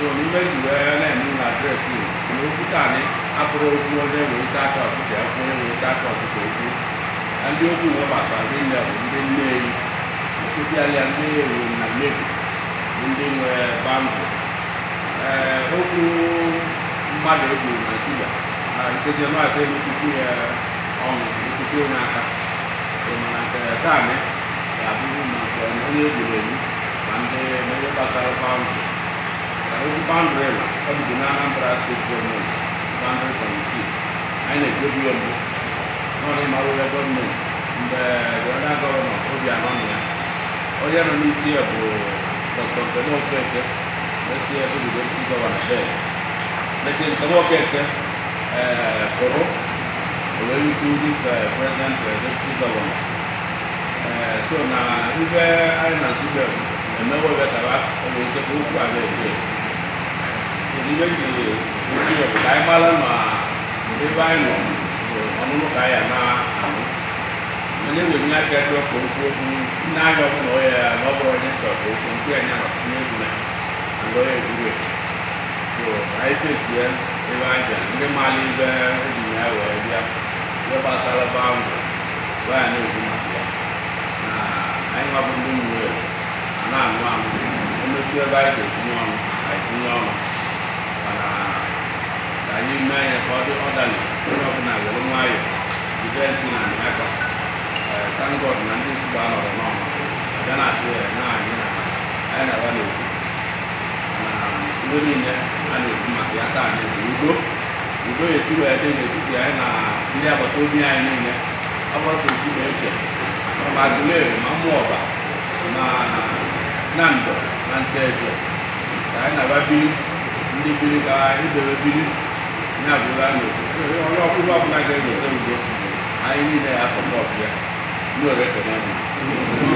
so nímẹ̀lì rẹ̀ náà ní àdírẹ́sì ìlú peter ní akọrọ ogun ọdẹ wòye dákọ ọsùkẹ ọkùnrin wòye dákọ ọsùkẹ ojú ẹni ó dùn wọn bàtà ní ilẹ̀ òǹdé lẹ́yìn ìpèsè alẹ́ ní èrò nàlẹ́bù òǹdé wẹ báńkì ẹ ókú mmadụ egwu naijiria na nkezi ọnụahịa ego tupu ya ọnụ tupu onye aka mana nke taa ga-abụrụ maka onye egburu egbu ma ndị mmehie gbasara paụndụ every boundary of the Anambra State Government, boundary committee, and a good one, not in Marula government, the other governor, Obi Anonia. Oya no means here for Dr. Kemo Keke, let's see if we don't see the one there. Let's see Kemo Keke, Koro, going to so now, if I am a super, and going to go to ನಿಜವಾಗಿ ಕಾಯಮಾಲನ್ನು ನಿಜವಾಗಿ ಅವನು ಕಾಯನ મને યોજના કે તો કોઈ ના જો હોય નવો હોય તો કોઈ છે ને ને લોય ગુરે તો આઈ પે છે એ વાજે ને માલી બે દુનિયા હોય યા ય પાસાલા બામ વા ને ગુમા ના આઈ માં બંધુ ને ના ના ને કે બાઈ કે નું આઈ નું ọbụnala onye ọbụla were nwayọọ ijenti na aka tangod na ndị nsogbu anọrọ n'ọma abịa na asị ya na anyị na na-agba n'okwu na ihe niile a na-ekwu maka na ndị agbata obi anyị niile agbasa otubeche ma ma ma na ndọ na nteje anyị na-agba biri ndị biri ka n'a onye ọbụla ọbụla ga-enweta udo anyị niile ya sọpọtụ ya ndị orekọnọmi